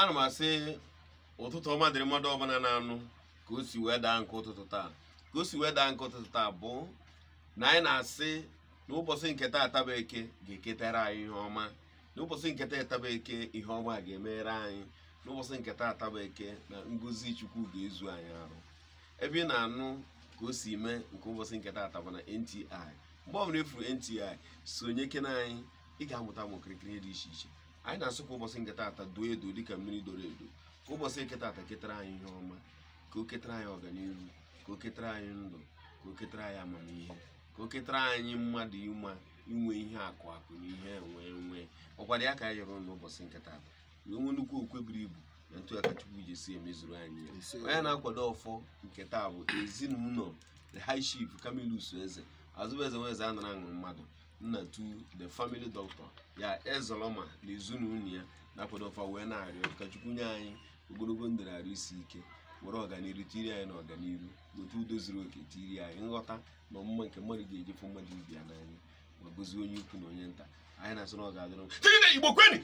ana m asị ụtụtụ ọma dịrị mmadụ ọbụla na-anụ ka o si wee daa nke ụtụtụ taa ka o si wee daa nke ụtụtụ taa bụ na anyị na-asị na ụbọchị nke taa ataba eke ga-eketara anyị ihe ọma na ụbọchị nke taa ataba eke ihe ọma ga-emere anyị n'ụbọchị nke taa ataba eke na ngozi chukwu ga-ezu anyị arụ ebe ị na-anụ ka o si mee nke ụbọchị nke taa ataba na NTI mgbe ọ bụla efuru NTI sonye kena anyị ị ga-amụta ụmụ okirikiri dị iche iche anyị na-asụ kwa ụbọchị de caminho duo edu dịka mmiri doro que ka ụbọchị nke taata ketara anyị ihe ọma que o que trai ọganihu que o ketara anyị ndụ que o ketara anyị amamihe ka o ketara anyị mmadụ ịma inwe um akụ akụ na ihe nwee nwee ọkwado ya ka anyị yọrọ n'ụbọchị nke taata wee nwee nnukwu okwe buru ibu na ntụaka chukwu ji esi emezuru anyị onye na-akwado ọfọ nke taa bụ ezinụlọ não, high chief camillus eze azụbụ vezes nweze anara aṅụrụ mmadụ nnatu the family doctor ya ezoloma na ezinụlọ ya nakwadofa wee na-arịọ ka Chukwu nye anyị ogologo ndụ na isi ike were ọganihu tiri anyị na ọganihu otu udo zuru oke tiri anyị nghọta na ọmụma nke mmadụ ga fụ mmadụ ibi ya n'anya ma gozie onye ukwu na onye nta anyị na-asụ na ọ ga-adịrị Igbo kweni